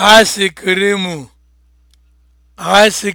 Ice cream, ice